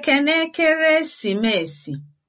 Ekene Ekeresimesi!